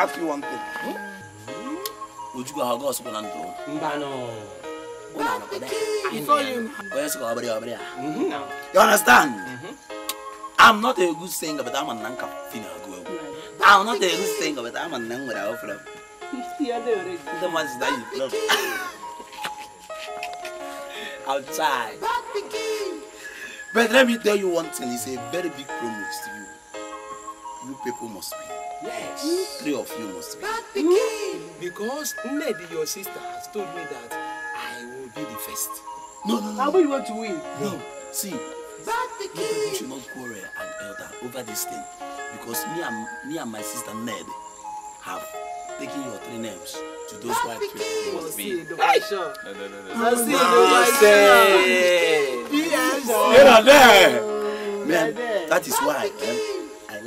ask you one thing. Hmm? Would you Ujugo how goes when I'm through. Mbano. You understand? Mm-hmm. I'm not a good singer, but I'm a nanka finago. I'm not a good singer, but I'm a nang without flop. The ones that you flop. Outside. But let me tell you one thing, it's a very big promise to you. you people must be. Yes. Mm. Three of you must be. Bad pikin. Mm. Because Nnedi, your sister, has told me that I will be the first. No, no, no. How about you want to win? No. no. See. Bad pikin. No, should not quarrel and elder over this thing. Because me and, me and my sister Ned have taken your three names to those Bad white people. Must be. Hey. No, no, no, no. Must be. Must be. Yes. Yes. Yes. Yes. Yes. Yes. Yes. Yes. Yes. Yes. That is why. Eh,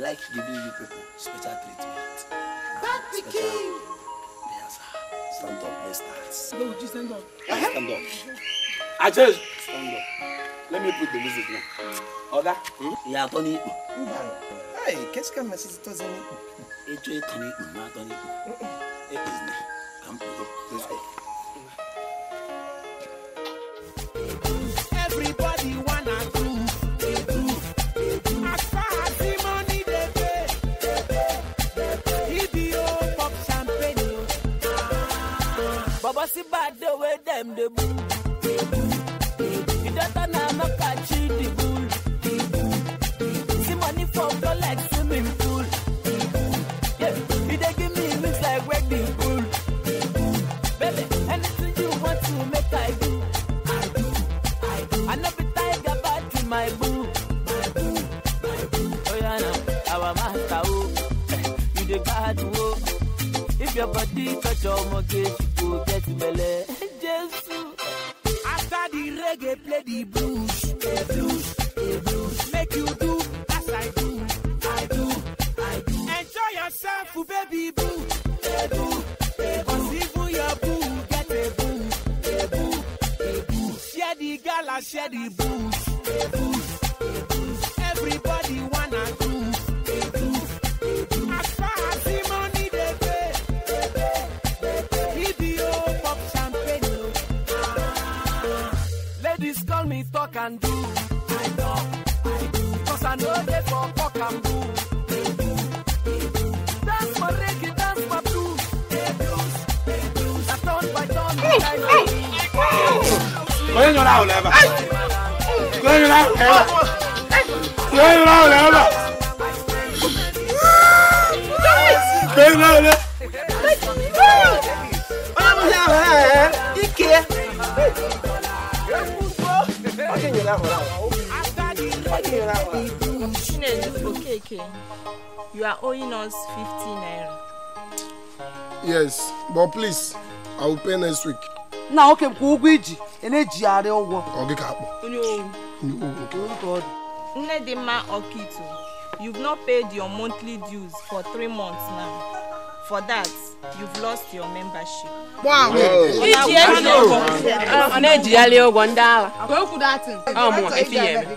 like giving you people special treatment. Back the special. king. Yes, stand up, let's dance. No, just stand up. Uh eh, -huh. Stand up. I just stand up. Let me put the music now. Order. ìyá àtọ́ ní Hey, catch come, ká máa ṣe ti tọ́sí not ipò. Ètò ìtàn ní ipò máa tọ́ ní What's about the way them the bull? You don't know I'm a the bull. See money from the like swimming pool. Yeah, you they give me looks like wrecking pool. Baby, anything you want to make I do. I do, I do. I never be tiger back to my boo. My boo, my boo. Oh yeah, now our master, oh, you the bad, oh. If your body touch your mortgage. The Blue. yes but please i will pay next week. nna nwoke m kwụ ụgwọ iji na-ejigharị ụgwọ ọ gị ka akpọ nne dị mma ọkaitu you've not paid your monthly dues for three months now for that you've lost your membership. iji ego ọ na-ejigharị ụgwọ ndị agha. ka o kwuru atụ. ọ ya eme.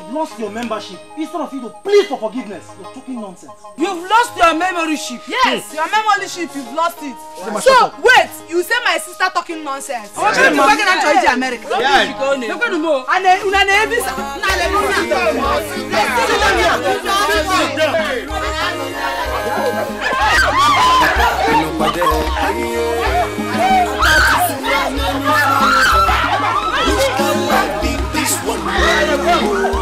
lost your membership instead of you to plead for forgiveness. You're talking nonsense. You've lost your membership. Yes, your membership, you've lost it. So, wait, you say my sister talking nonsense. Oh, she's talking and trying to America. Yeah. Look at them all. And then, una ne visa. Na le luna. Sit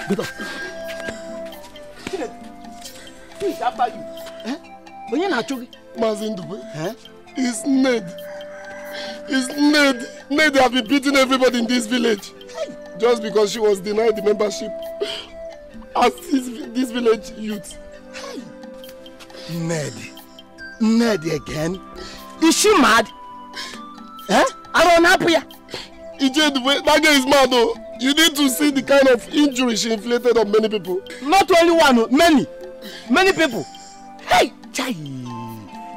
gbẹtọ. Please, after you. Eh? Onye na-achụ gị? Maazị Ndube. Eh? It's Ned. Is Ned. Ned have been beating everybody in this village. Just because she was denied the membership as this, this village youth. Ned. Ned again? Is she mad? Eh? I don't know. Ije Ndube, that girl is mad though. You need to see the kind of injury she inflicted on many people. Not only one, oh, many. Many people. Hey, chai.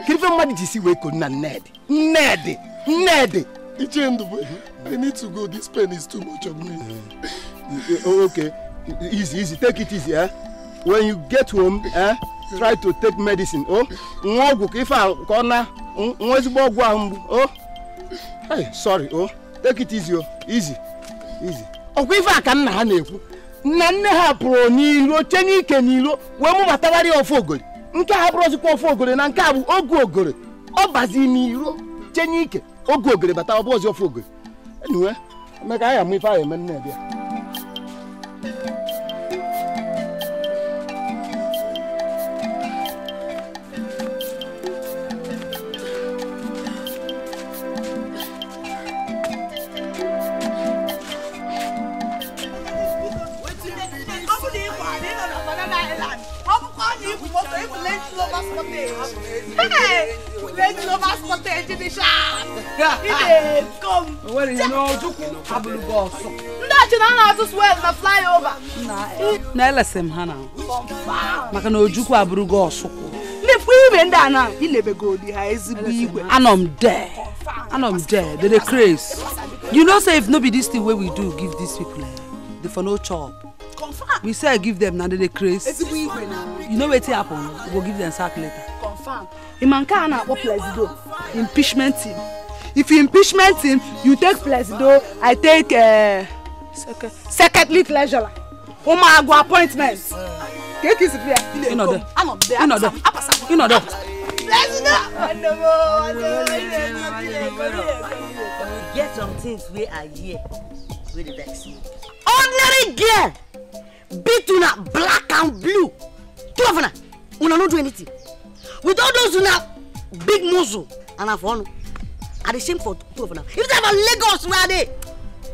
Give him money to see where Kuna Ned. Ned. Ned. Ichendube, I need to go. This pen is too much of me. Eh, oh, okay. Easy, easy. Take it easy, eh? When you get home, eh? Try to take medicine, oh? Ngoguk, if I corner, ngozbo guambu, oh? Hey, sorry, oh? Take it easy, oh? Easy, easy. ọkwa ife a ka nna ha na-ekwu nna nne ha pụrụ n'iro chenye n'ike n'iro wee mụbatagharị ofe ogori nke bụrụ bụrụzikwa ofe ogori na nke a bụ ogu ogori ọ bazi n'iro chee n'ike ogu ogori bata ọbụ bụzi ofe ogori enyiwe amụ ife anyị eme nne bịa stage ni sharp. He dey come. Well, you know, Juku Abulugo so. Nda chuna na atus well na fly Na. Na lesem ha na. Maka na Juku Abulugo so. Ni fu ibe nda na, i lebe go di ha ezigbo igwe. Anom there. Anom there. They dey craze. You know say if no be this thing wey we do give these people, eh, they for no chop. We say I give them na they dey craze. You know wetin happen? We go give them sack later. Imanka a na-akpọ Plesido impeachment team. If impeachment team, you take Plesido, I take uh, eh, secretly treasurer. Ụmụagwụ appointment. Ka eke isi bịa. Ịnọdụ. Ịnọdụ. Ịnọdụ. Get some things wey I hear wey dey vex me. Ordinary girl beat una black and blue. Two of una, una no do anything with all those una big muscle and na for onu i dey shame for two of una if na for lagos wey i dey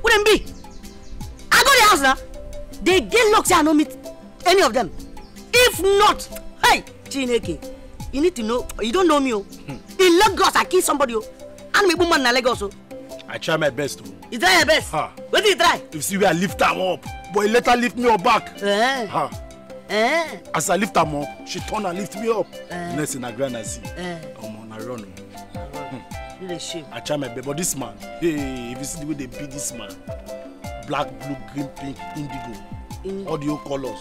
who dem be i go the house na dey get luck say i no meet any of them if not hey chineke you need to know you don't know me o oh. hmm. in lagos i kill somebody o oh. and me woman na lagos o. Oh. i try my best o. you try your best. Ha. wetin you try. you see where i lift am up but e later lift me up back. Huh. Eh. Ha. Eh? As I lift am up, she turn and lift me up. Eh? Next in a grind and see. Eh? Omo, na run. Hmm. I try my best, but this man, hey, if you see the way they beat this man, black, blue, green, pink, indigo, In all the old colors.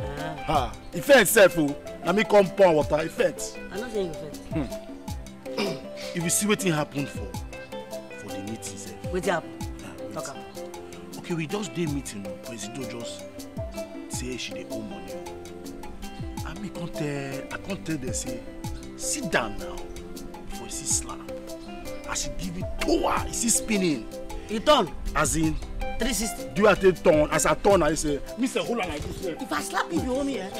Ah. Ha. Effect itself, oh, Let me come pour water. Effect. I'm not saying effect. Hmm. if you see wetin happened for for the meeting sef. wetin up. okay we just did meeting o presido just say she dey owe money o ami come tell i come tell them say sit down now before you see slap I should give me towa you see spinning. e turn. as in. three do you take turn as i turn i say mr hold am like this well. if i slap you you owe me. Eh?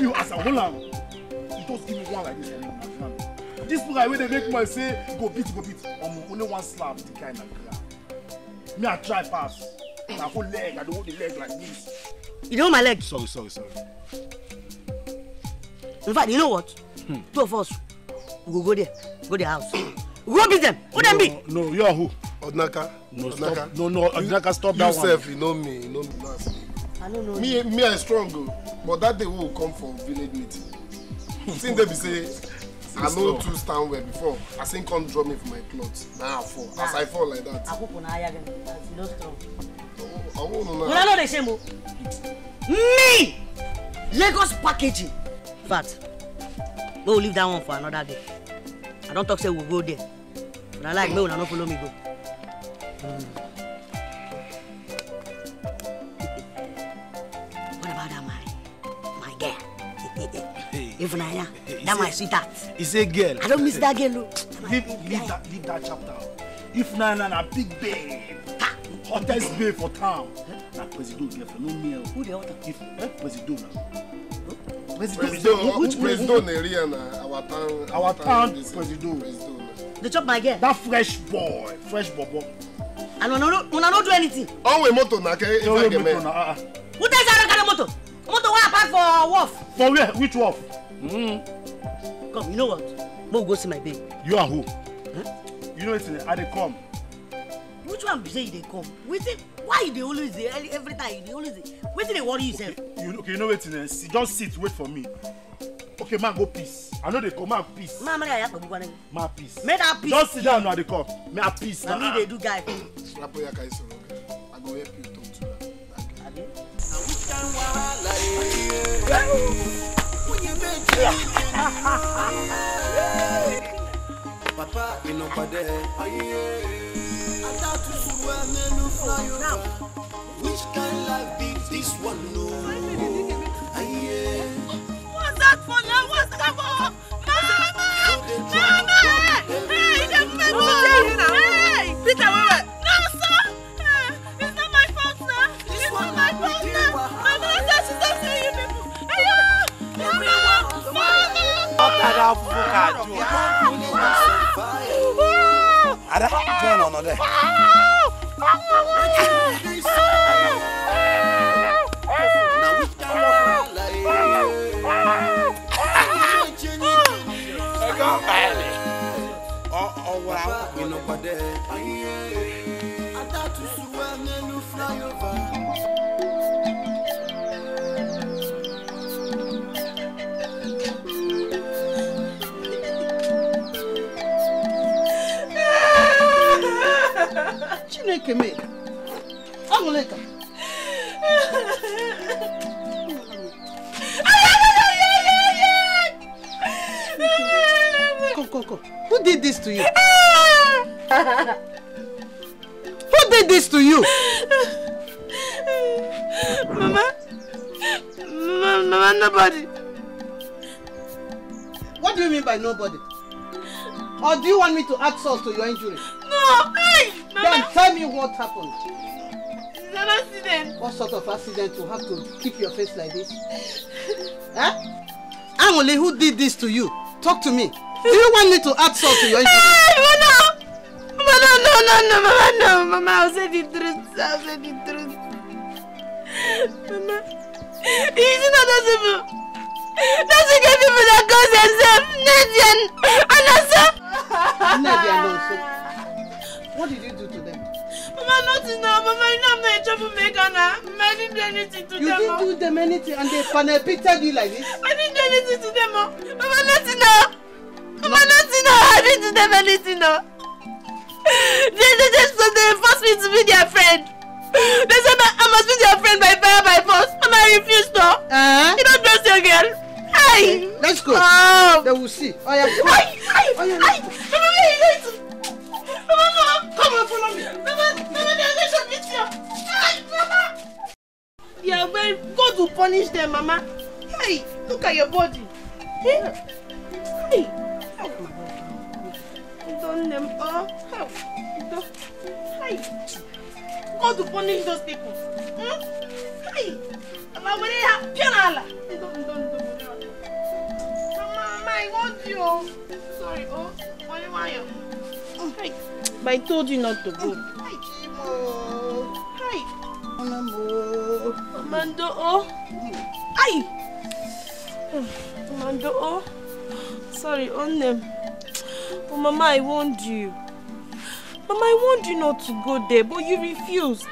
me as i hold am you just give me one like this. Eh? this guy wey they make money say go beat go beat I'm only one slap the kind of ground me i try pass I hold leg i dey hold the leg like this You know my leg. Sorry, sorry, sorry. In fact, you know what? Hmm. Two of us, we go go there, go their house. go beat them. Who no, them be? No, you are who? Odnaka. No, Odnaka. stop. No, no, Odnaka, stop you, that yourself, one. You know me, you know me. Last. I don't know. Me, you. me, I strong, oh. but that day we will come for village meeting. Since they be say. I no too stand well before. I seen come draw me for my clothes. Now I fall. As ah. I fall like that. I hope na again. No strong una no dey shame o me lagos packaging Fat. make we leave that one for another day i don't talk say we go there But I like make una not follow me go. Mm. what about that my my girl if na ya that my sweetheart. he say girl. i don't miss that girl look. leave leave that leave that chapter if na na na big babe hottest babe for town. Na Presido have no meal. Who the hell give? Eh? Presido now. Presido, which Presido? our town. Our town Presido. Presido. They chop my girl. That fresh boy, fresh bobo. And una no, una no do anything. Onwe oh, moto na ke if I get me. Ah, ah. Who tell you carry Motor. Moto wa park for wolf. For where? Which wolf? Mm. Come, you know what? Mo go see my babe. You are who? Huh? You know it's I dey come which one be say you dey come wetin why you dey always dey every time you dey always dey wetin dey worry you sef. you okay you know wetin eh see just sit wait for me okay ma go peace i no dey come ma peace. ma amara yaya kpọgbọgbọ nagi. Eh. ma peace. make that peace. just sit down na dey come may peace na. na me dey do guy. slapo yaka is wrong i go help you talk to her. na which kind wahala ye. wúnyẹ méje. papa ìnàpàdé ayé. Which kind of life is this one? your injury? No! Hey! Mama. Then tell me what happened. It's an accident. What sort of accident to have to keep your face like this? huh? Eh? Amole, who did this to you? Talk to me. Do you want me to add salt to your injury? Hey, Mama! Mama, no, no, no, no, Mama, no. Mama, I'll say the truth. I'll say the truth. Mama, it's not possible. That's the people that cause themselves Nigerian and ourselves. Nnedi alone. what did you do to them? Mama, nothing now. Mama, you know I'm not a troublemaker now. I didn't do anything to you them. You didn't oh. do them anything and they panepicted you like this? I didn't do anything to them. Oh. Mama, nothing now. Mama, nothing now. I didn't do them anything now. Oh. They, they just so they forced me to be their friend. They said I must be their friend by fire by force. And I refused to. Uh -huh. Eh? You don't trust your girl. Hey! Let's go. Um, ah! they will see. Oh yeah. Come on. Oh yeah. Hey! Come on, hey, hey. Come on, come on, follow me. Come on, come on, let's go meet you. Hey, Mama. Yeah, well, God will punish them, Mama. Hey, look at your body. Hey. Hey. don't them oh, all. Hey. God will punish those people. Hmm? Hey. Mama, we have piano. Don't, don't, don't. I want you. Sorry, oh, why? do you Hi. But I told you not to go. Hi, Chimo. Hi. Onamo. Mando, oh. Hi. Mando, oh. Sorry, on them. But Mama, I warned you. Mama, I warned you not to go there, but you refused.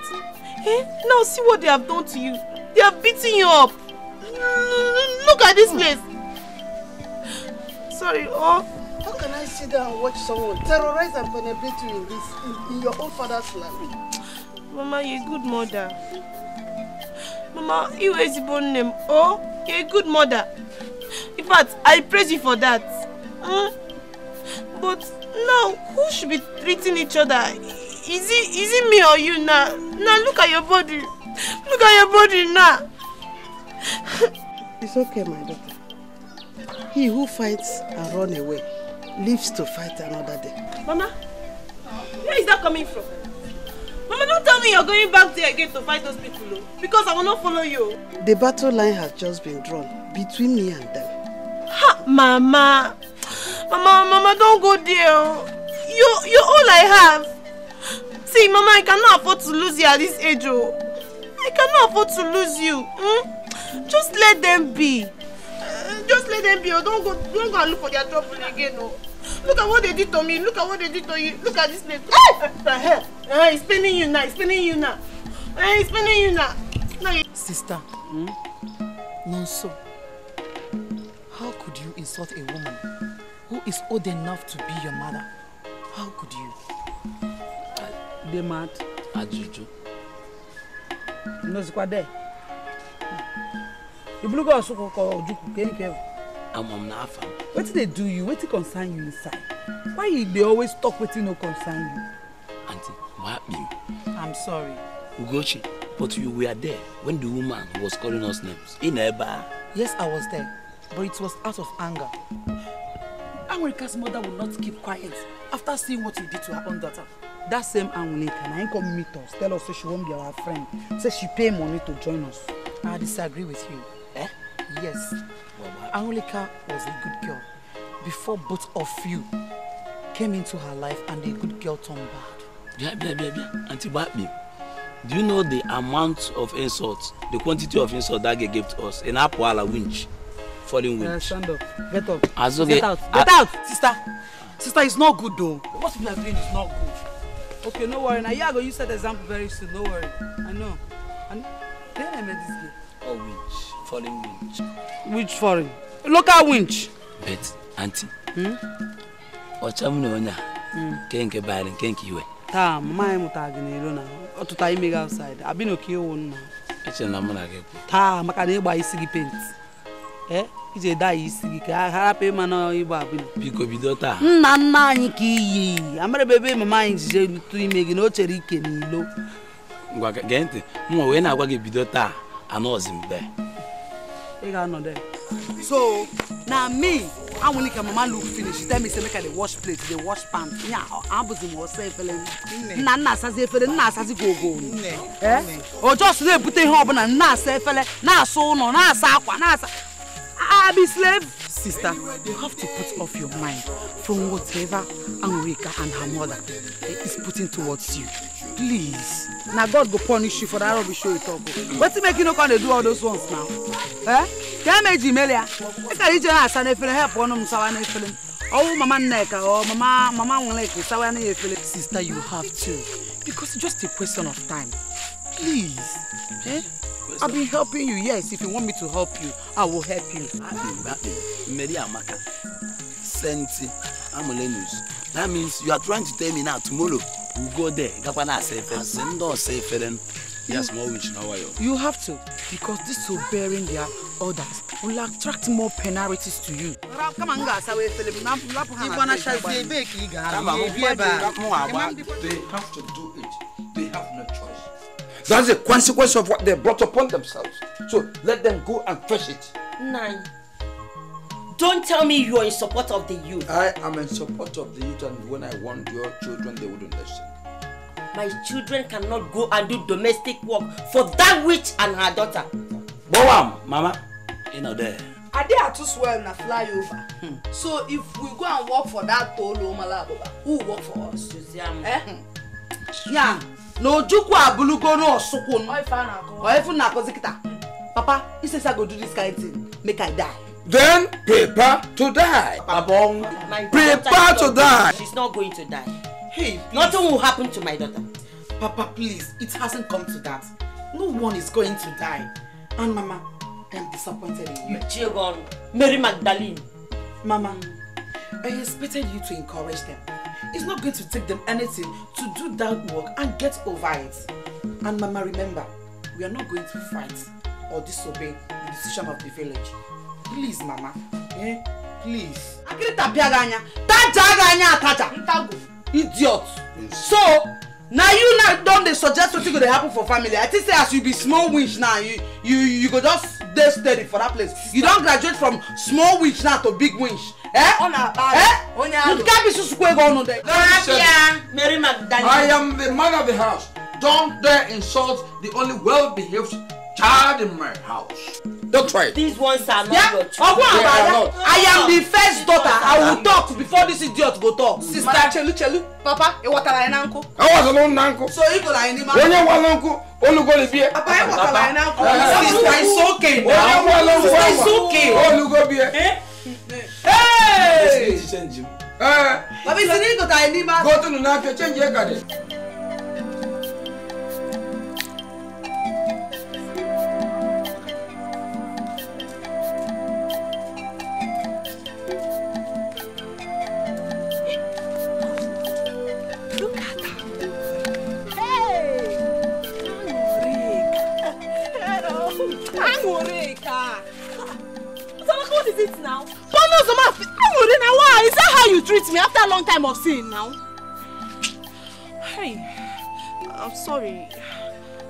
Eh? Now see what they have done to you. They have beaten you up. Look at this hmm. place sorry. Oh. How can I sit there and watch someone terrorize and penetrate you in this, in, in your own father's land? Mama, you're a good mother. Mama, you are a born name. Oh, you're a good mother. In fact, I praise you for that. Mm? But now, who should be treating each other? Is it, is it me or you now? Now look at your body. Look at your body now. It's okay, my daughter. He who fights and run away lives to fight another day. Mama, where is that coming from? Mama, don't tell me you're going back there again to fight those people, oh, because I will not follow you. The battle line has just been drawn between me and them. Ha, Mama. Mama, Mama, don't go there. Oh. You, you're all I have. See, Mama, I cannot afford to lose you at this age, oh. I cannot afford to lose you. Hmm? Just let them be just let them be oh don't go don't go and look for their trouble again oh look at what they did to me look at what they did to you look at this place ah the hell ah it's paining you now it's paining you now ah uh-huh. it's paining you now. now you... sister hmm? nonso how could you insult a woman who is old enough to be your mother how could you. Be mad. ajuju. nozikwa there. Hmm the blue girl also call Ojuku Kenny Kevin. I'm on Nafa. What did they do you? What did concern you inside? Why you, they always talk you no concern you? Auntie, what happened? I'm sorry. Ugochi, but you were there when the woman was calling us names. In Eba. Yes, I was there, but it was out of anger. America's mother will not keep quiet after seeing what you did to her own daughter. That same Anwulika, ain't come meet us, tell us say she won't be our friend, say she pay money to join us. I disagree with you. Yes. Angelica was a good girl before both of you came into her life and the good girl turned bad. Yeah, yeah, yeah, yeah. Auntie Babi, do you know the amount of insults, the quantity of insults that girl gave to us in Apoala winch, falling uh, winch? Uh, stand up. Get up. As Get out. Get out. sister. Sister, it's not good though. What we are doing is not good. Okay, no worry. Now, Yago, you set the example very soon. No worry. I know. And then I met this girl. Oh, winch. Foreign winch. Which foreign? Local winch. Bet, auntie. Hmm? Ọchamu na onye a. Hmm. Nke nke baịrị nke nke iwe. Taa, mama anyị mụtara gị n'elu na ọtụta ime gị outside. Abi na oke ewu nna. Echere na mụ na gị kwụ. Taa, maka na ịgba isi gị pent. Eh? iji da daa isi gị ka a harapụ ịma na ịgba abịa. Biko bido taa. Nna nna anyị ka iyi. Amarịba ebe mama anyị ji jee tụ ime gị na o chere ike n'ilo. Ngwa gee ntị, mụ wee na-agwa gị bido taa anọzi mgbe. e ga anọ there. so na me anwụlike mama look finish tell me say make i dey wash plate dey wash pan nya abụzi m ọsọ efere nna nna asazi efere nna asazi gogo o jos na-ebute ihe ọbụla nna asa efere na-asa ụlọ na-asa akwa na-asa be slave sister you have to put off your mind from whatever anwụlika and her mother is putting towards you please na god go punish you for that rubbish wey you talk o wetin make you no come dey do all those ones now eh kemeji melia eka ije na asa n'efere help ọnụ m sawa n'efere ọwụ mama nneka ọ oh, mama mama nweleke sawa na efere. sister you have to because it's just a question of time please eh i been helping you yes if you want me to help you i will help you. akpị mgbe akpị mmeri amaka senti amulenus that means you are trying to tell me now tomorrow we we'll go there gakwana asa efere sị ndị ọsa efere yes more ọwụ na ọwa ya. you have to because bearing their orders will attract more penalties to you. Come on guys, asawa efere m napụ ha na ịgba na shazie ebe ka ị gara ebe a. they have to do it they have no choice. that's the consequence of what they brought upon themselves so let them go and fetch it. nine. Don't tell me you are in support of the youth. I am in support of the youth and when I want your children, they wouldn't listen. My children cannot go and do domestic work for that witch and her daughter. Boam, Mama, you know there. Are they Ade Atuswell na flyover. Hmm. So if we go and work for that Tolu Malaboba, who will work for us? Eh? Hmm. Yeah. na ojukwu abulugo n'osukwu oifu na akozi kita papa he say i go do this kind of thing make i die Then prepare to die. Abong. Prepare to die. She's not going to die. Hey, please. Nothing will happen to my daughter. Papa, please, it hasn't come to that. No one is going to die. And Mama, I am disappointed in you. Children, Mary Magdalene. Mama, I expected you to encourage them. It's not going to take them anything to do that work and get over it. And Mama, remember, we are not going to fight or disobey the decision of the village please mama eh please. akịrị tapịa gị anya tajaa gị anya ataja ntago idiot so na you now don dey suggest wetin go dey happen for family i think say as you be small winch now you you you go just dey steady for that place you don graduate from small winch now to big winch. Eh? Ọ na eh? onye ahụ. Nke bụ ego ọnụ dị. N'ahịa Mary Magdalene. I am the man of the house. Don't dare insult the only well-behaved child in my house. Don't try. These ones are not yeah. your children. Ọgbọ́n àbáyá. I am the first daughter. I will talk before this idiot go talk. Sister Chelu Chelu, Papa, ịwọtara anyị na uncle. Awọtala ụnụ na nkụ. So ịgụrụ anyị n'ime. Onye nwa na nkụ, olugo libie. Papa, ịwọtara anyị na nkụ. Sister, it's okay now. Onye nwa na nkụ, it's okay. Olugo bie. Ee. Baba, isi n'igote anyị n'ime. Gotunu n'afịa, Change your adị. long time of seeing now. Hey, I'm sorry.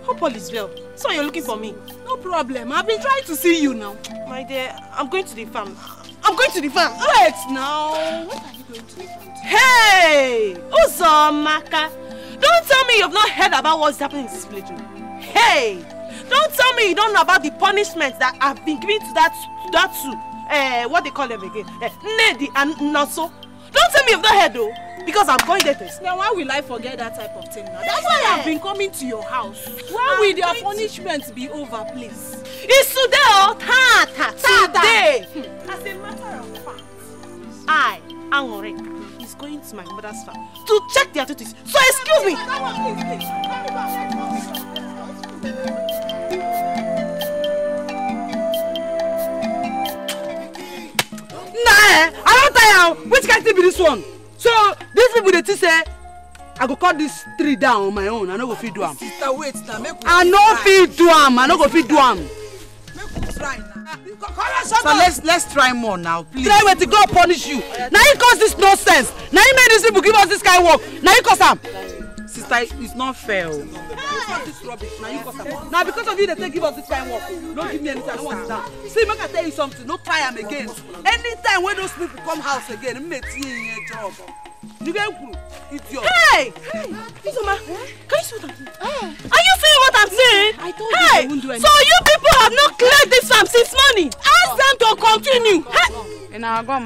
Hope all is well. So you're looking for me? No problem. I've been trying to see you now. My dear, I'm going to the farm. I'm going to the farm. Wait now. What are you going to the farm? To? Hey, Uzomaka. Don't tell me you've not heard about what's happening in this village. Hey, don't tell me you don't know about the punishment that I've been giving to that, that two. Uh, what they call them again? Uh, Nedi and Naso. Don't tell me you've not heard though. Because I'm going there to Now why will I forget that type of thing now? That's why I've been coming to your house. Why will their punishment be over, please? It's today or oh, today, Today! Hmm. As a matter of fact, I, Anore, is going to my mother's farm to check their duties. So excuse me! Nah! Eh? now oh, which kind thing be this one so these people dey think say i go cut this tree down on my own i no go fit do am i no fit do am i no go fit do am. so let's let's try more now please. try wetin god punish you na him cause this nonsense na him make these people give us this kind work na him cause am sister it's not fair o. Oh. na because of you dey take give us this kind work no give me anything i no wan sit down see make i tell you something no try am again anytime wey those people come house again mme tie ihe job you get It's your. hey izoma eh? can you see what i'm doing. are you seeing what i'm saying. i told you hey, i won't do anything. so you people have not cleared this farm since morning ask them to continue. Hey. ina agom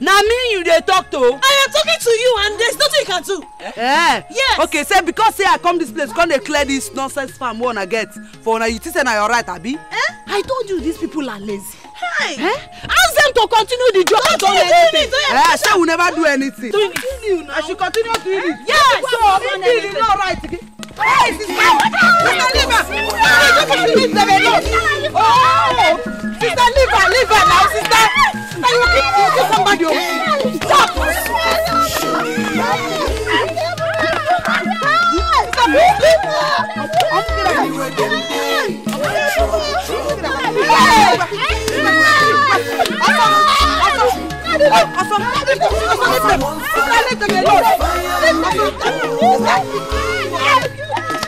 na me you dey talk to. i am talking to you and there is nothing you can do. Eh? yes. okay say because say i come this place come dey clear dis nonsense farm wey una get for una you think say na your right abi. Eh? i told you these people are lazy. Hi. Eh? ask them to continue the job Don't do anything. Eh? shey we never do anything. continue now. i should continue doing it. yes so me be the no right. Hey, sister! Sister Liva! Sorry, don't come to me, baby. No. Oh, sister Liva, Liva now, sister. Are you okay? You kill somebody. Stop. Hey!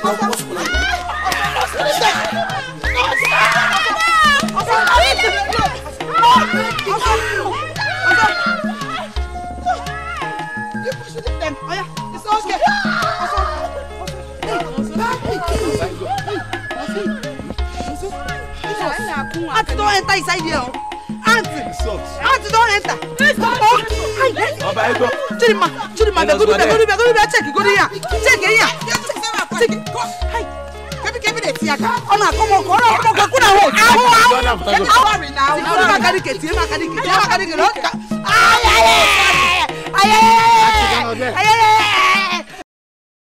Auntie, don't enter inside here. Auntie, Auntie, don't enter. Chidima, Chidima, go do that, go do that, go do that. Check, go do that. Check here sigi kọ hayi kẹbi kẹbi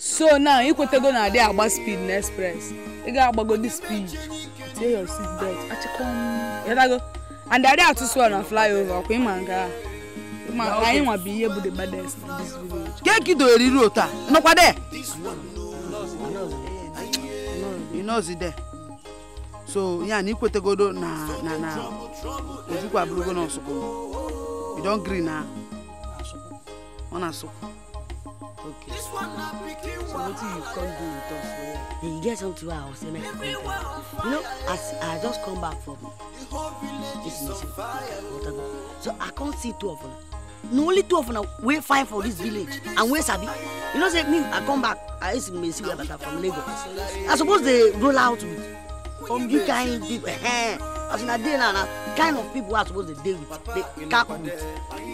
so now ikwetego na adị agba speed na express ị ga-agbago dị speed tie your seat belt achịkọm ịdago and adị atụsụ na flyover ọkwa ịma nke a ma anyị nwa bụ ihe bụ the baddest na this village. keki doere iru otu a nọkwa dee you know see there so yan ni kwetegodo na na na ojukwu aburugo na ọsụkwụ you don gree na ọ na-asụkwụ okay so wetin you come do with us for here you get something wey i wan you know as i just come back from this meeting so i can't see two of them na only two of una wey fine for dis village and wey sabi you know say me i come back i use mesi wey bata from lagos i suppose dey roll out with you kind people uh, as una dey now na kind of people wey i suppose dey dey with dey cap with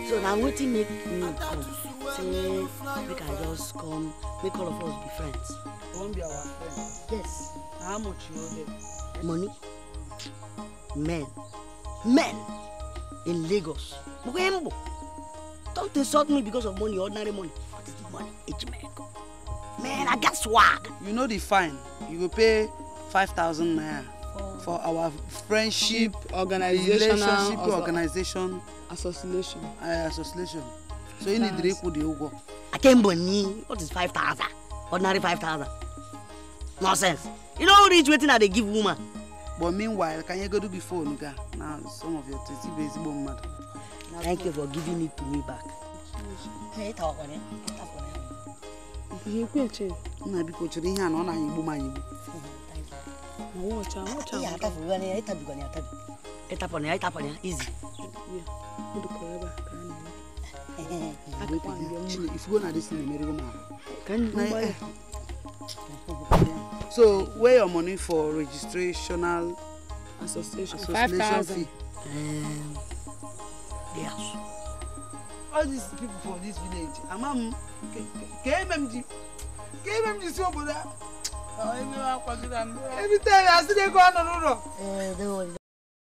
so na wetin make me come say make i just come make all of us be friends. you be our friend. yes. how much you owe them. money men men in lagos mo ko ye n bo. Don't insult me because of money, ordinary money. What is the money? It's miracle. Man, I got swag. You know the fine. You will pay 5,000 naira for our friendship organization relationship organization association uh, association so you need reku the ugo akembo ni what is 5000 ordinary 5000 nonsense you know who reach waiting? i they give woman but meanwhile can you go kanyegodu before onuga Now some of your tins you be ezigbo Thank you for giving it to me back. nna biko chụrụ ihe a na ọ na-anya igbu m anya igbu ya ịtapụna ya izi ifugo na dis na-emerigo m ahụ So, where your money for registrational association, association fee? Um, Yes. All these people from this village, Amam, KMMG, KMMG so Buddha. Every time I see they go on and on. Oh.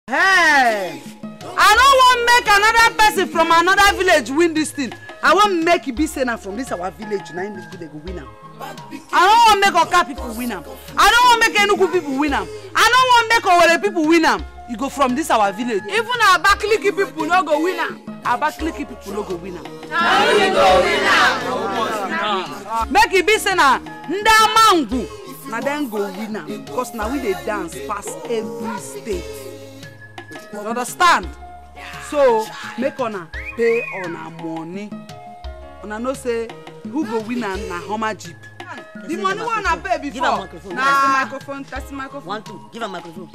Eh, hey! I don't want make another person from another village win this thing. I want make Ibisena from this our village, now in this village, win now. I don't want make Oka people win now. I don't want make Enugu people win now. I don't want make Owere people win now. You go from this our village even our abakiliki people no go win am abakiliki people no go win am na we go win make it e be say na ndị amangwu na dem go win am because na we dey dance past every state you understand so make una pay una money una no say who go win am na homa jeep the money wey una pay before Give na microphone tasi microphone one two give am microphone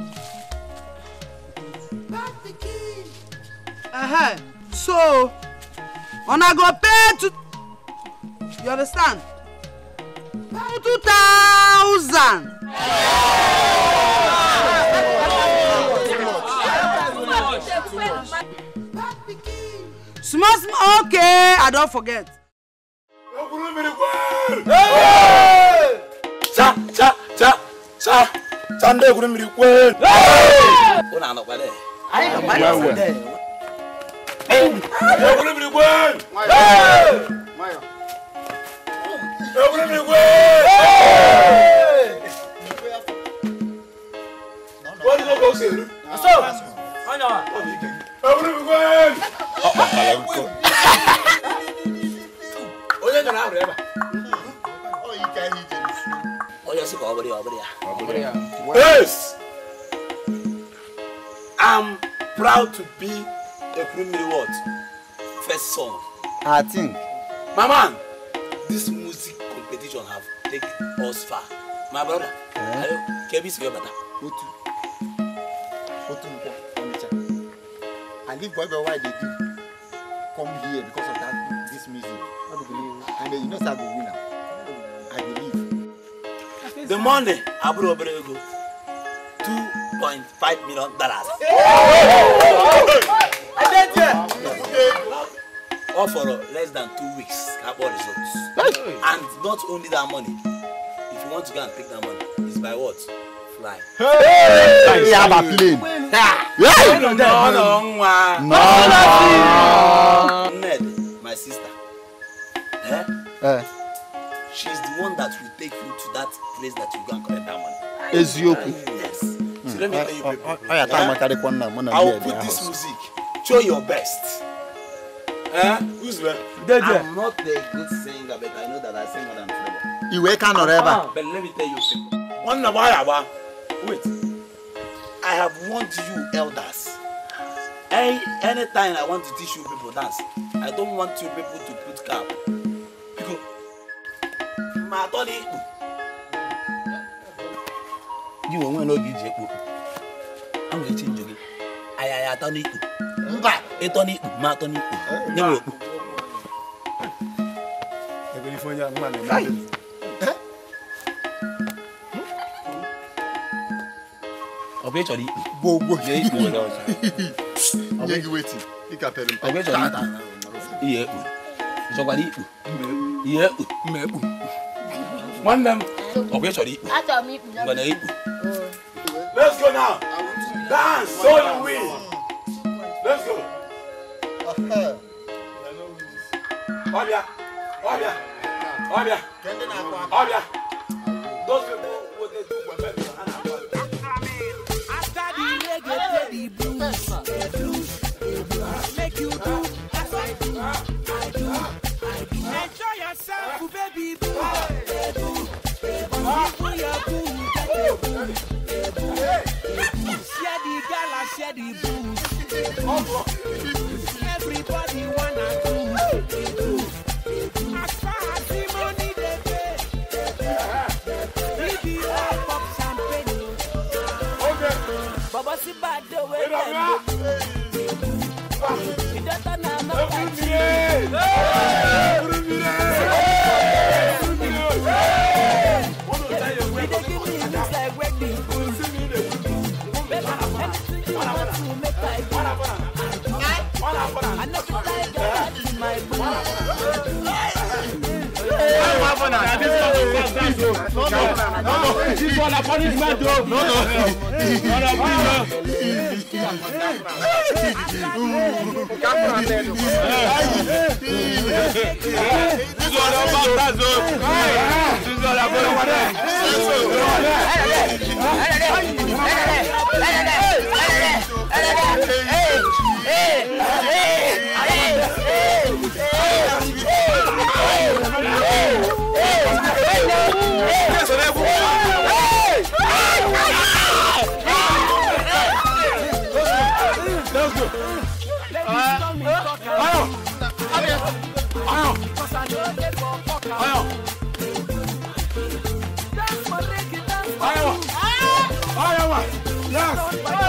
Uh-huh. So, una go pay to... You understand? Pay 2,000. Small, small, okay, I don't forget. Cha, cha, cha, cha. Sande gure miri kwel. Ona ana kwale. Ai ka kwale sande. Ai gure miri kwel. Mayo. Mayo. Ai gure miri kwel. Wọ́n ní kókó ṣèlú. Ṣé o? Ọ̀nà. Ẹ̀wúrẹ́ mi kwel. Ọ̀pọ̀ kàlẹ́ ń kọ́. Onye gara ahụrụ ebe a? Ọ yi ka ihe ije. na ọ bụrụ ya ọ bụrụ ya yes i'm proud to be ekwurumiri what first song? i think my man this music competition have take us far my brother ayo kebi sigi bata. otu otu nkwa onitsha i leave boy boy why dey do come here because of that this music no be believe and you know say i go win am the money àbúrò obìnrin ego two point five million dollars. all for less than two weeks carbon results and not only that money if you want to go and take that money it's by what fly. Hey, hey, have a plane. Hey, no, no, no, no. Ned, my sister. Eh? Eh. She's the one that will take you to that place that you go and collect that money. eziokwu yes mm. so let me tell you people. ọya taa ma carry i will put this music show your best. Eh? who's there? dey there. i'm not a good singer but i know that i sing more than flavour. You kan nọrọ ebe a. Ah, but let me tell you people. One nà wáyà wait i have warned you elders. Any, anytime I want to teach you people dance, I don't want you people to put cap. Because my gị onwe n'oge iji ekpo anwụ echi njọ gị ayaya atọ n'ikpo mba ịtọ n'ikpo ma atọ n'ikpo nye m okpo ọ bụ ịchọrọ ikpo ọ bụ ịchọrọ ikpo ihe ekpo ịchọkwara ikpo ihe ekpo nwanne m Of where sorry? After me. Gonna eat. Let's go now. Dance so you win. Let's go. Oh yeah, oh yeah, oh yeah. Those people. Share the gala, share the booze. Everybody wanna do. As far as the money they pay, we be all champagne. Okay. Oh. Baba si bad the way them. We don't turn our mouth at you. Hey! Hey! Hey! Hey! Hey! be. We'll sing it. Anything you want to make I do. governor. Na this governor. No, no, no. This one na punishment o. No, no. Ọ̀nà bí lọ. This one na baptize o. This one na punishment. Hey! Hey! Hey! Hey!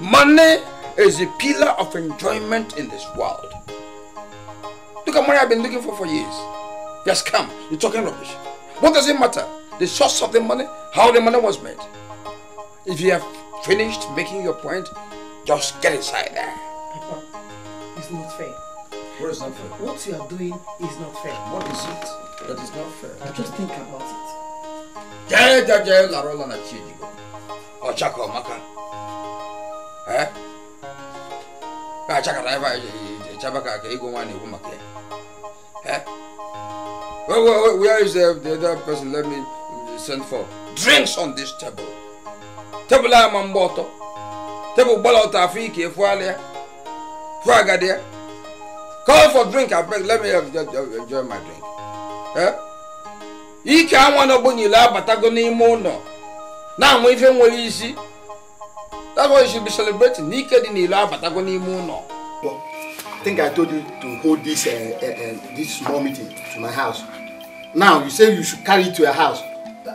Money is the pillar of enjoyment in this world. Look at money I've been looking for for years. Just come. You're talking rubbish. What does it matter? The source of the money, how the money was made. If you have finished making your point, just get inside there. Papa, it's not fair. What is not fair? What you are doing is not fair. What is it that is not fair? I just think about it. Jai Jai Jai Ochako Maka. a achakata ebe anyị echebe ka ka ego nwa na-ekwu maka ya where is the, the other person let me send for drinks on this table table a ma mgbe ọtọ tebụl gbala ọtọ afọ ike efuala ya fụ agadi ya call for drink abeg let me enjoy my drink eh ike anwa na ogbonyile abatago n'ime ụlọ na-anwa ife nwere isi That's why you should be celebrating. Naked in the Nikedi ni ila batago ni muno. I think I told you to hold this uh, uh, uh, this small meeting to my house. Now you say you should carry it to your house.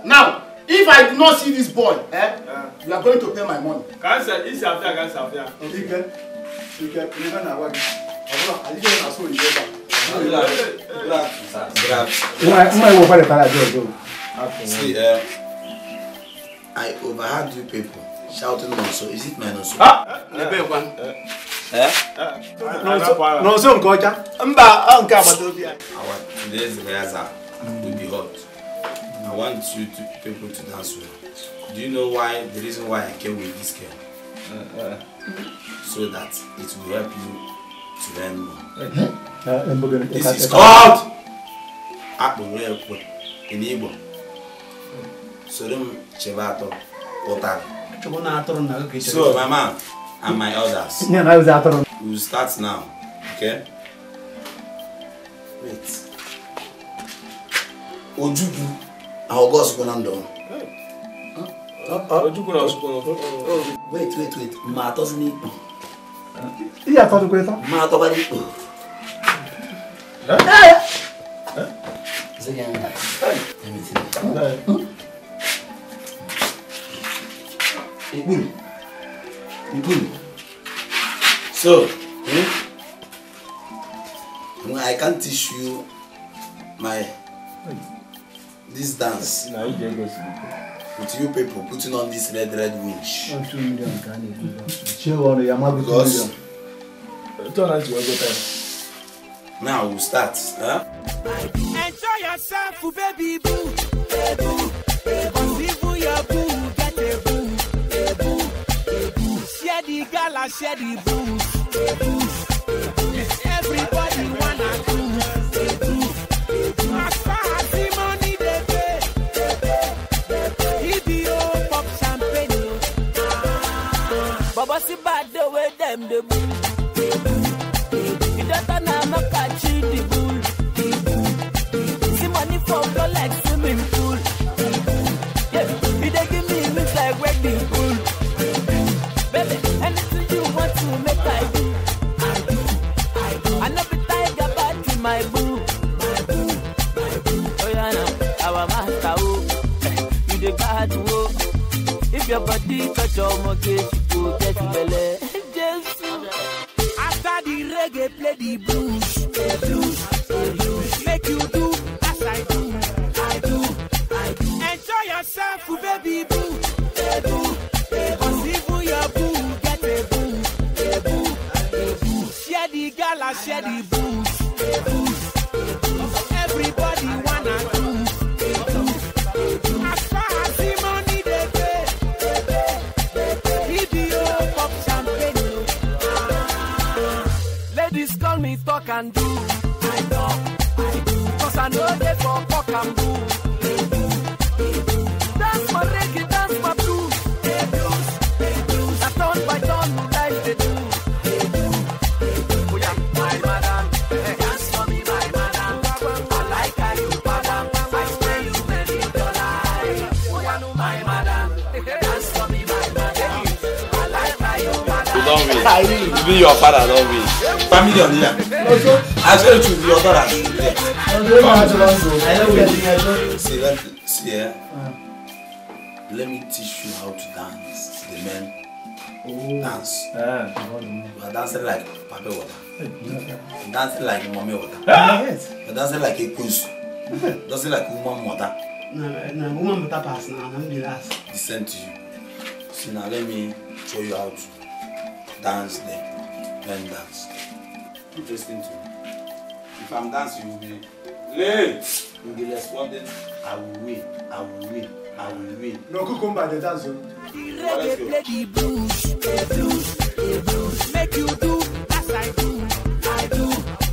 Now, if I do not see this boy, eh, yeah. Uh-huh. you are going to pay my money. Cancer, it's after cancer after. Okay. Okay. Okay. You can have one. I didn't ask for you. See, uh, I overheard you people shouting nonso is it my nonso. n'ebe nkwa. nonso nke ọcha. mba ọ ah, nke agbata obi anyị. awa today is rehearsal will be hot i want you to people to dance well do you know why the reason why i came with this girl. Uh, uh. so that it will help you to learn more. Mm-hmm. Uh, this is called akpụrụ ekwe in Igbo. Mm. Soro m chebe atọ pụtara. chọbụ na atụrụ na oge so Mama, and my elders nne na ozi atụrụ we will start now okay wait ojukwu na ọgọ ọsụkwụ na ndụ ojukwu na ọsụkwụ wait wait wait ma atọzi n'ikpo ihe atọdụkwa ịta ma atọba n'ikpo Hey! Hey! Hey! Hey! Hey! Hey! Ibùn. Ibùn. So, hmm? I can't teach you my this dance. Na you go With you people putting on this red red winch. Because now we start. Huh? Enjoy yourself, baby boo. Baby boo. share the blues. Everybody wanna The money He be pop Baba bad the way them the After the reggae play the blues. love me. Even your father love me. Family on here. I swear to be your father should be there. See, let me, see here. Eh? Let me teach you how to dance. The men oh. dance. Yeah. You are dancing like Papa Water. You're dancing like Mommy Water. Ah! Yes. You're dancing like a goose. Dancing like woman water. No, no, woman mother pass now. I'm the last. Listen to you. See now, let me show you how to Dance then, Then dance. Interesting to me. If I'm dancing, you'll be late. You'll be responding. I will wait. I will wait. I will wait. No cucumber, the dance. Well, let's go. The blues, the blues, the blues. Make you do as I do. I do,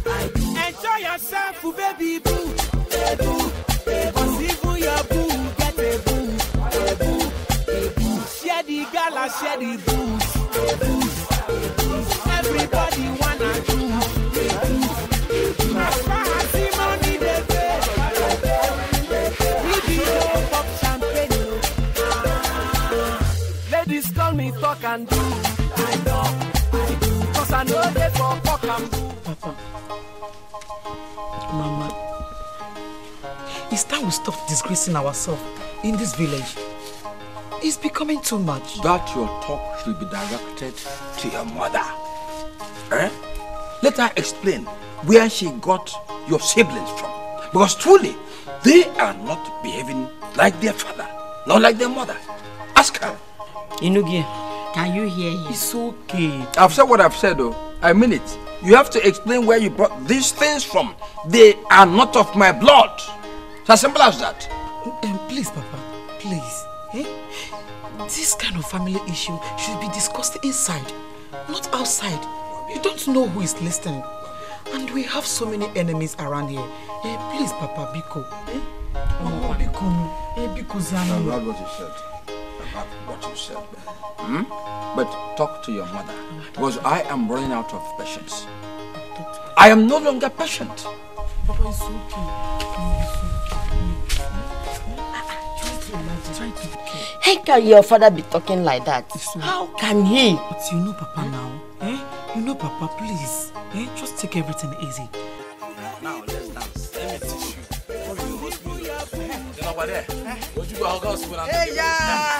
I do. Enjoy yourself, oh, baby boo. Baby boo. Share the gala, share the booze. talk and do. I I do. Cause I know they for fuck and do. Papa, Mama, it's time we stop disgracing ourselves in this village. It's becoming too much. That your talk should be directed to your mother. Eh? Let her explain where she got your siblings from. Because truly, they are not behaving like their father, not like their mother. Ask her. Inugie, Can you hear him? It's okay. I've said what I've said, though. I mean it. You have to explain where you brought these things from. They are not of my blood. It's as simple as that. Um, please, Papa. Please. Eh? This kind of family issue should be discussed inside, not outside. You don't know who is listening. And we have so many enemies around here. Eh, please, Papa, Biko. Eh? Oh, Biko. Eh, Biko Zanu. I love what you said. yourself. Hmm? But talk to your mother. Because I am running out of patience. I am no longer patient. Papa, it's okay. How can your father be talking like that? How can he? But you know Papa now. Eh? You know Papa, please. Eh? Just take everything easy. Now let's dance. Let me teach you. you,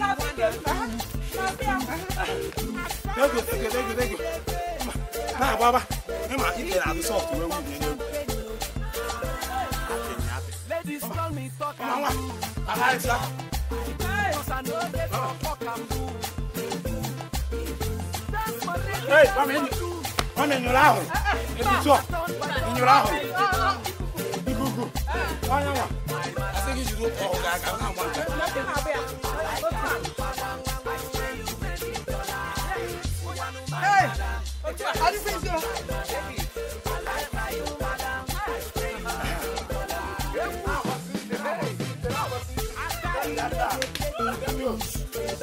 Thank you, thank you, thank you, thank you. Nah, Baba, you might eat it out of salt. Where would Ladies call me talk. Mama, I like that. come in. Come in your house. It's In think you should go. Oh, God, I'm not one.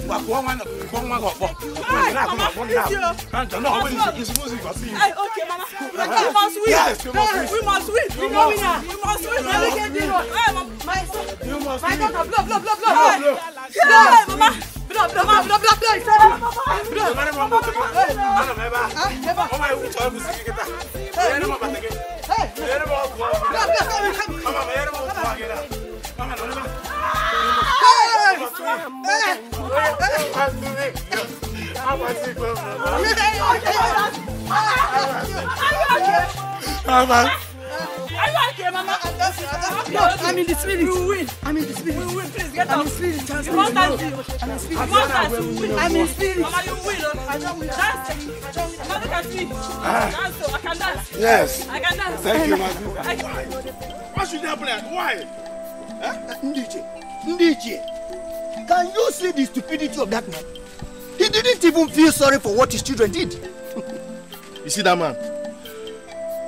wa kò wọn kò wọn kò pọ wọn yìí náà kò wọn kò náà kan jọ náà wọn yìí is music for sing. ayi ok mama we must win yes we must win we must win we no win na we must win na we get the road ayi my my daughter blow blow blow blow blow blow mama drop, drop, drop, drop, drop, drop. Drop. Mama mo mo. Ala me ba. Me ba. Mama u cho bu sigi kita. Hey, mama ba tege. Hey. Yere mo ku. Drop, drop, drop. Mama me yere mo ku ba gela. Mama no ba. Hey. Hey. Hey. Hey. Hey. Are you okay, Mama? I'm in the spirit. You win. I'm in the spirit. You win. Please get out. I'm in spirit. I'm in spirit. I'm in win. I'm in spirit. Mama, you win. I don't win. Dance. Mama, look at me. Dance. I can dance. Yes. I can dance. Thank you, Mama. Why? Why should you play? Why? Ndiche. Ndiche. Can you see the stupidity of that man? He didn't even feel sorry for what his children did. you see that man?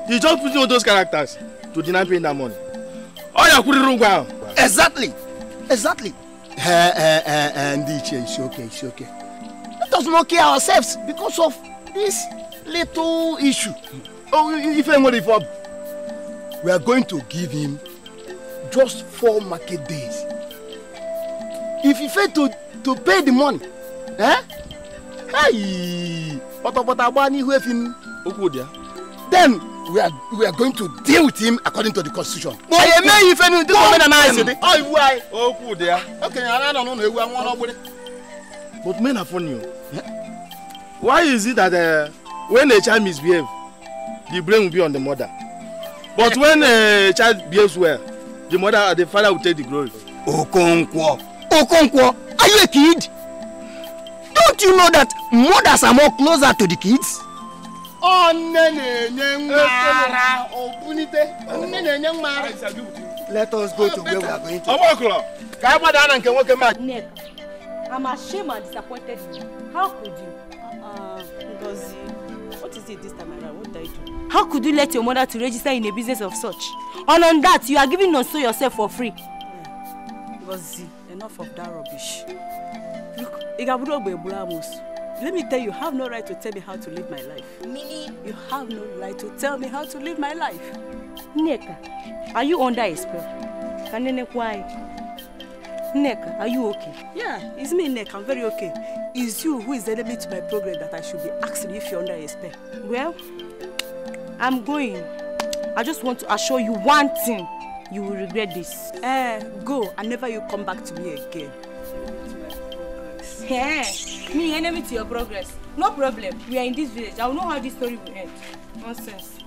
He just put on those characters to deny paying that money. Oh, yeah, could wrong wow. Exactly. Exactly. Uh, uh, uh, and it's okay, it's okay. Let us not kill ourselves because of this little issue. Oh, if anybody for we are going to give him just four market days. If he fail to to pay the money, eh? Hey, pọtọpọtọ agba n'ihu efi m. Okwu dị ya. Then we are we are going to deal with him according to the constitution. ẹyẹ mẹyìn fẹmi ní tíkọ mẹna máa ṣe dé. ọ ìwú ayé. ó kù dé a. okenye ara nọ n'ụlọ ewu àwọn ọlọgbẹrẹ. but men are funny o. why is it that uh, when a child misbehave the blame will be on the mother but eh. when a child behaves well the mother the father will take the glory. okonkwo okonkwo are you a kid don't you know that mothers are more closer to the kids. Onne na-enye nwa obunite. Onne na-enye nwa Let us go to where we are going to. Ọgbọkụlọ, ka anyị gbada na nke nwoke mmadụ. Nick, I'm ashamed and disappointed. How could you? Uh, uh what is it this time around? What did I do? How could you let your mother to register in a business of such? And on that, you are giving Nonso yourself for free. Yeah. enough of that rubbish. Look, ogbe egburu amụsụ. Let me tell you, you have no right to tell me how to live my life. Mini, you have no right to tell me how to live my life. Neka, are you under a spell? Kanene why? Neka, are you okay? Yeah, it's me, Neka. I'm very okay. It's you who is the enemy to my program that I should be asking if you're under a spell. Well, I'm going. I just want to assure you one thing. You will regret this. Eh, uh, go and never you come back to me again. Yeah. Me, enemy to your progress. No problem. We are in this village. I will know how this story will end. Nonsense.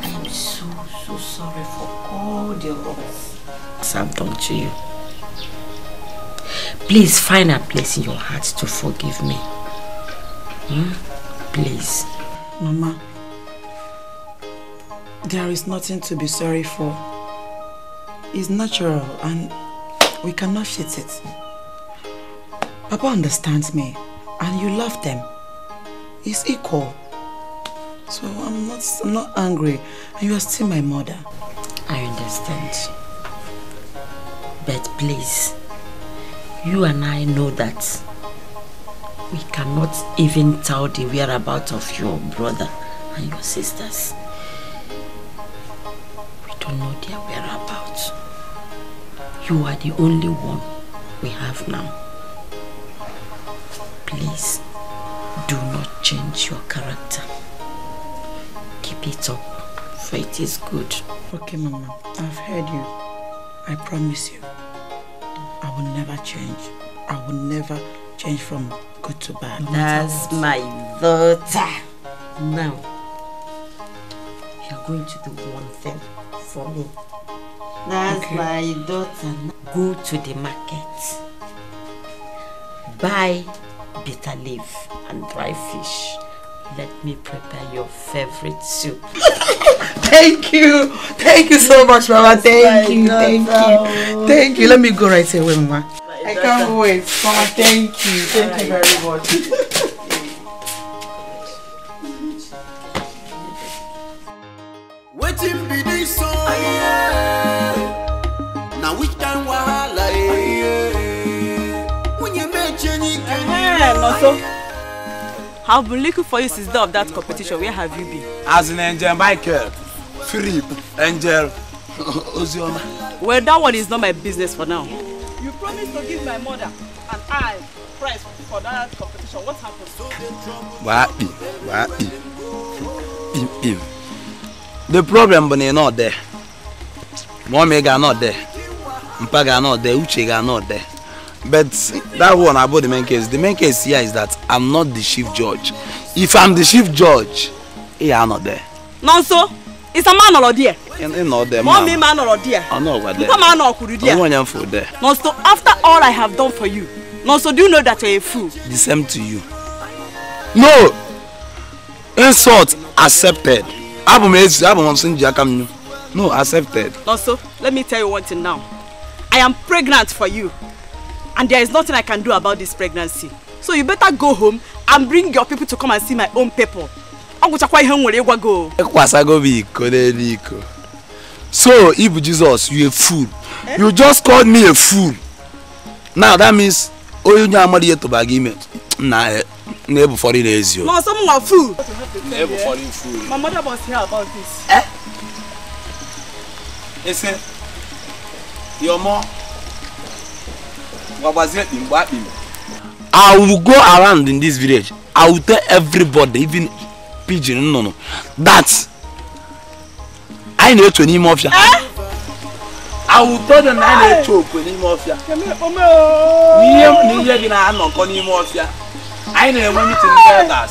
I'm so, so sorry for all the wrongs Sam, done to you. Please find a place in your heart to forgive me. Hmm? Please. Mama, there is nothing to be sorry for. It's natural and we cannot shit it. Papa understands me, and you love them. It's equal. So I'm not, I'm not angry, and you are still my mother. I understand. But please, you and I know that we cannot even tell the whereabouts of your brother and your sisters. You are the only one we have now. Please, do not change your character. Keep it up, for it is good. Okay, Mama. I've heard you. I promise you. I will never change. I will never change from good to bad. No That's my daughter. Now, you're going to do one thing for me. That's okay. my daughter. Go to the market. Buy bitter leaf and dry fish. Let me prepare your favorite soup. thank you. Thank you so much, Mama. Thank you. Thank you. Thank you. Let me go right away, Mama. I can't wait. Mama, thank you. Thank you very much. Waiting this song. so? I've been looking for you since day of that competition. Where have you been? As an Angel Michael, Philip, Angel, Ozioma. Well, that one is not my business for now. You promised to give my mother an eye prize for that competition. What happened? Wapi, wapi, The problem bụ not there. Mommy ga not there. Mpa ga nọ there. Uche ga nọ there but that one about the main case the main case here is that i'm not the chief judge if i'm the chief judge he are not there. nonso so it's a man or dị mma mọ mi ma nọrọ díẹ. ọ nọ gwa dị nkwa ma nọ ọkwuru díẹ. onwe onye m fụ dị. nonso after all i have done for you no, so do you know that you're a fool. the same to you. no insult accepted abụ m ezi abụ m nsị nji aka m no so let me tell you one thing now i am pregnant for you and there is nothing I can do about this pregnancy. So you better go home and bring your people to come and see my own people. Ọ gwụchakwa ihe m nwere ịgwa go. o. Ekwasago m iko n'elu iko. So if Jesus you a fool. Eh? You just called me a fool. Now that means onye onye amara ihe tụbara gị ime na na-ebu foreign ezi o. Ma ọsọ fool. Na-ebu fool. My mother was here about this. Eh? Ese, your mom I will go around in this village. I will tell everybody, even pigeon, no, no, that I know to name of you. I will tell them I know to name of you. Niye niye gina anoko name of you. I know when you think that.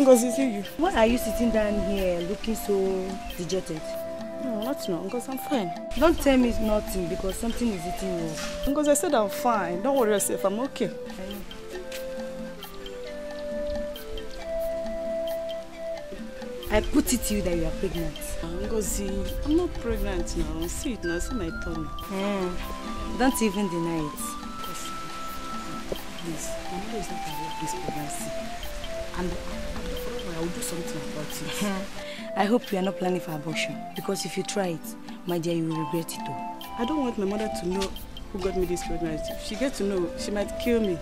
Ngozi, see you. Why are you sitting down here looking so dejected? No, not now, because I'm fine. Don't tell me nothing because something is eating you Because I said I'm fine. Don't worry yourself, I'm okay. I know. I put it to you that you are pregnant. Ngozi, I'm not pregnant now. See it now, see my tummy. Mm. Don't even deny it. Please, my mother is not aware this pregnancy. And I will do something about it. I hope you are not planning for abortion because if you try it, my dear, you will regret it all. I don't want my mother to know who got me this pregnancy. If she gets to know, she might kill me.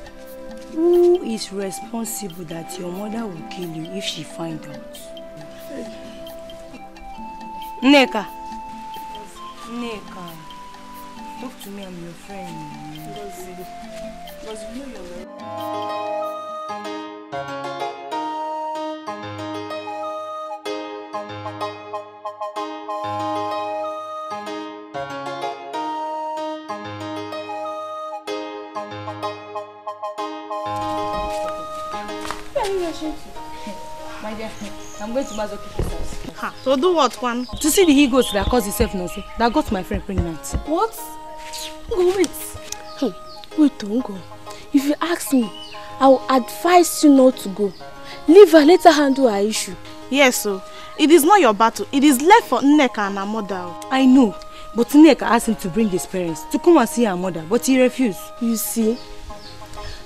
Who is responsible that your mother will kill you if she finds out? Neka. Neka. Talk to me, I'm your friend. Because you know you're My dear, I'm going to Mazo house. Ha, so do what, one? To see the egos that caused itself now, that got my friend pregnant. What? Go wait. Hmm. Wait, don't go. If you ask me, I will advise you not to go. Leave her, let her handle her issue. Yes, so it is not your battle. It is left for Nneka and her mother. I know, but Nneka asked him to bring his parents to come and see her mother, but he refused. You see,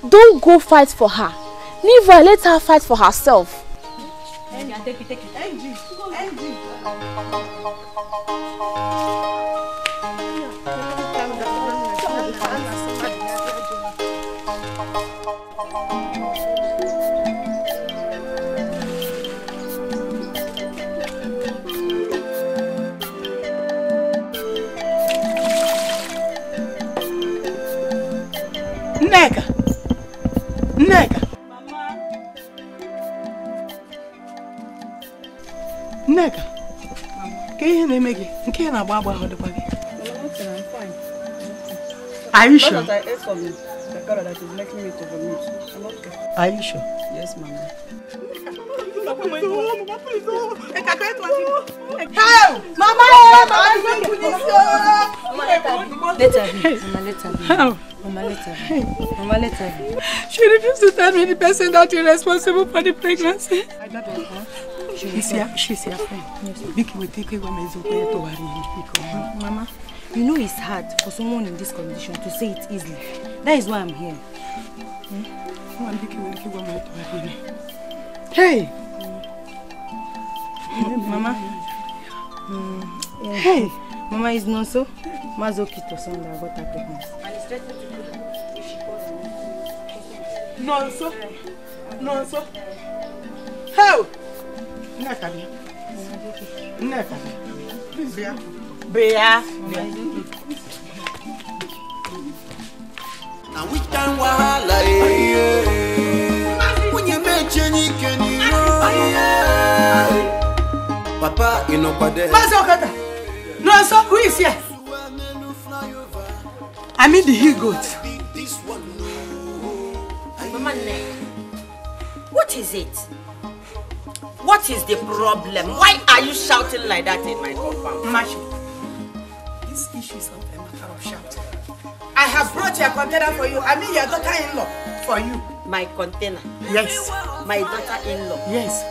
don't go fight for her. Leave her, let her fight for herself. Andy. Nneka, ka ihe na-eme gị nke na-agba agba ahụ dịkwa gị Are you sure? Are you sure? Yes, mama. How? Mama, mama, I'm going to this. Mama, later. She refused to tell me the person that is responsible for the pregnancy. I don't know. Mama, you know it's hard for someone in this condition to say it easily. That is why I'm here. Hmm? Hey! Hmm, Mama. Hmm. Hey! Mama is not so. Mazoki to son that got her pregnant. And it's threatening to do if she calls me. No, so. How? Ina tabi. Ina tabi. Please biya. Na witan wahala eh. Kunye meche Papa inokwade. Mazo kata. No so who is here? I mean the he goat. Mama, what is it? What is the problem? Why are you shouting like that in my compound? Mashu, this issue is not a matter of shouting. I have brought your container for you. I mean your daughter-in-law for you. My container? Yes. My daughter-in-law? Yes.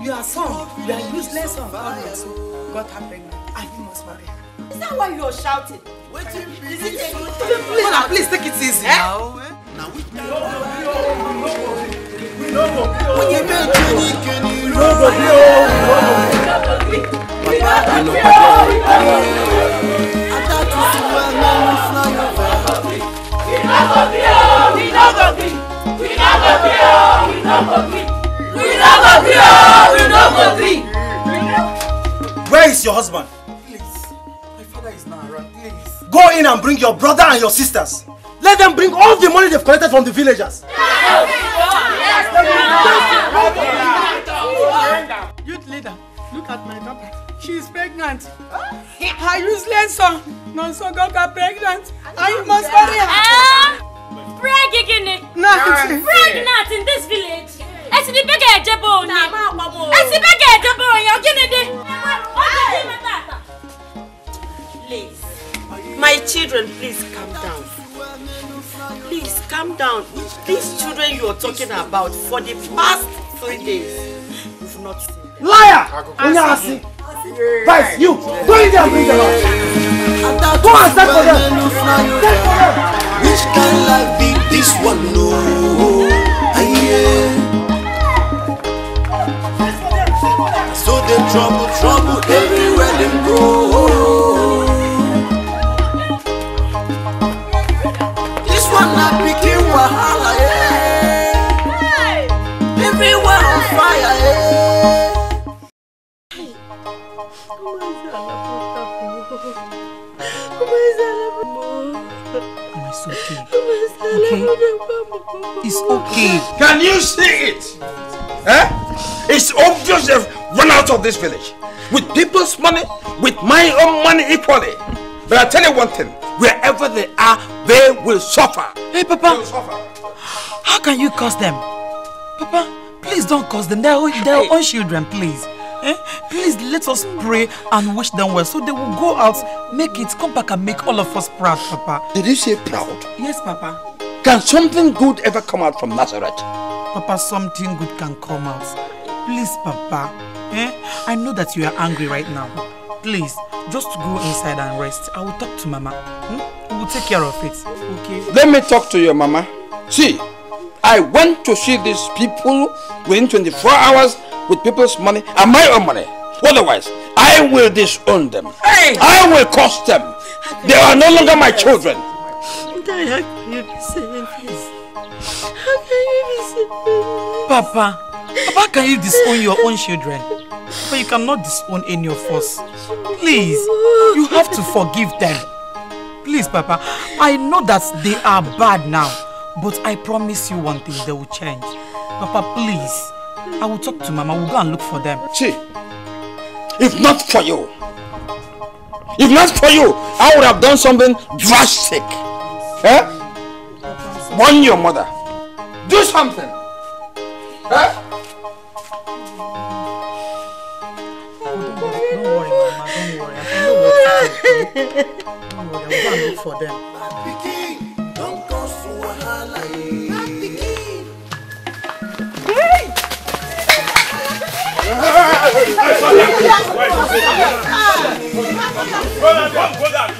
Your son, your useless son, God bless you, got her pregnant and you must marry her. Is that why you are shouting? Wait, please. Is it a... Please, please take it easy eh? now. Eh? Now, which... No, no, no, no, no oyin méje ní kìnnì rògbò bí o rògbò bí bàbá àlọ́ pàdé àtàtù sí wa lẹ́nu fúláyọ̀ bá. ìnáwó bí o ìnáwó bí ìnáwó bí o ìnáwó bí ìnáwó bí o ìnáwó bí. Where is your husband? Please, my father is not around. Please. Go in and bring your brother and your sisters. Let them bring all the money they've collected from the villagers. Yeah. Youth leader, look at my daughter. She is pregnant. Her useless son, Nonso, got pregnant. And you must marry her. Ah! Pregnant. Pregnant in this village. Ẹ ti di bẹ́gẹ̀ ẹ̀jẹ̀ bò ó ní. Ẹ ti bẹ́gẹ̀ ẹ̀jẹ̀ Please, my children, please calm down. Please calm down. These children you are talking about for the past three days, you've not seen them. Liar! Unyasi, Vice, you! Go in there and bring them out! Go and stand for them! Stand for them! Which can life be this one? No! So they trouble, trouble everywhere they go. This one not okay. It's okay. Can you see it? Eh? It's obvious they've run out of this village. With people's money, with my own money equally. But I tell you one thing, wherever they are, they will suffer. Hey, Papa. Suffer. How can you curse them? Papa, please don't curse them. They're, our hey. own children, please. Eh? Please let us pray and wish them well so they will go out, make it, come back and make all of us proud, Papa. Did you say proud? Yes, Papa. Can something good ever come out from Nazareth? Papa, something good can come out. Please, Papa. Eh? I know that you are angry right now. Please, just go inside and rest. I will talk to Mama. Hmm? We will take care of it. Okay? Let me talk to your Mama. See, I went to see these people within 24 hours with people's money and my own money. Otherwise, I will disown them. Hey. I will curse them. They are no longer my children. I How can you be saying How can you be Papa, Papa, can you disown your own children? But you cannot disown any of us. Please, you have to forgive them. Please, Papa, I know that they are bad now, but I promise you one thing, they will change. Papa, please, I will talk to Mama, we'll go and look for them. Chi, if not for you, if not for you, I would have done something drastic. Eh? Warn your mother. Do something. Eh? Don't worry, Mama. Don't worry. I don't worry. I'm going to look for them. Hey! Hey! Hey! Hey! Hey! Hey! Hey! Hey! Hey! Hey! Hey! Hey!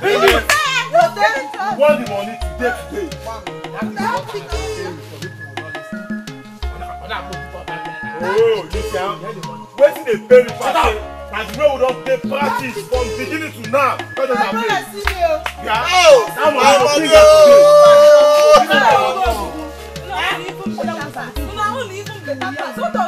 Baby, you want the money today today. Oh, you can. Wetin dey pay me pass? As we don dey practice from beginning to now. Oh, that one I don't think I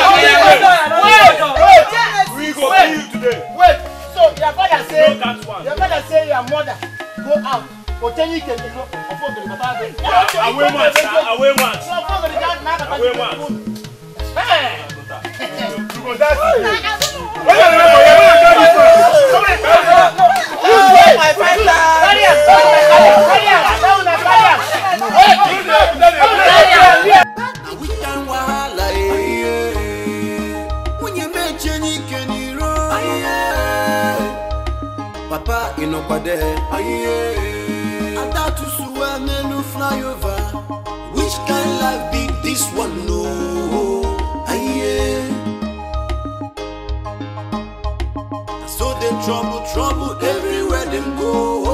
we go kill you today. wait so your father say your father say your mother go out otenyi kele no ọfọ gbèrè bàbá rẹ. awe wọn awe wọn awe wọn. you go dance. Yeah. pàdé. Adátúnṣúwà fly over. which kind life be this one no? So they trouble, trouble everywhere them go.